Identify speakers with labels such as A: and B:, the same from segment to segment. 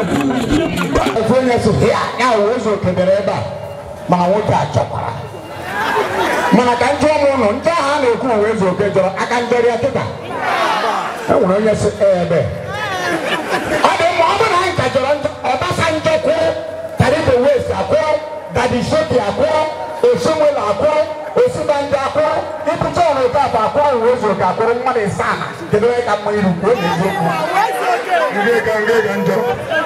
A: ofe onye ya wee ụzọ kebere ebe a ma nwoke a chọkwara mana ka ndị ọmụ ụlọ ndị ahụ a na-ekwu uwe oke jọrọ aka ndọrị kịta e nwere onye si ebe ọ dị mma ọ bụrụ na anyị ka jọrọ Obasanjo kwụrụ Taribo Dadi kedu onye ka mma iru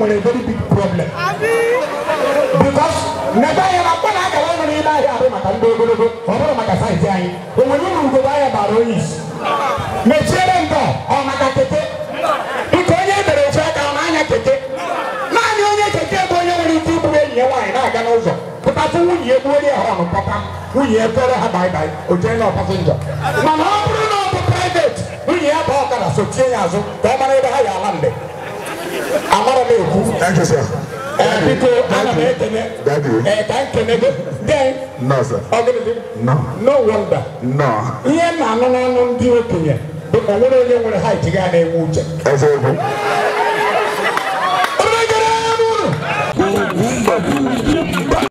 A: nwere very big problem na akara ahịa maka ndị ogologo maka anyị o nwere uru ahịa bara onye isi mechiere ndọ ọ maka keke nke onye ebere echi aka ọ na-anya keke naanị onye keke bụ onye nwere ike iburu enyi ya nwaanyị na-aga n'ụzọ nwunye onye nwunye ha o jee na ọ bụrụ na ọ bụ private nwunye ya bụ ọkara sochie ya azụ ka ọ mara ebe ha ala mgbe Oku. Thank you, sir. Uh, because Daddy. Daddy. Uh, thank you, Then. No, sir. Organism. No. No wonder. No. Yeah, no, no, no, no, no, no, no, no, no, no, no, no, no, no, no, no, no, no,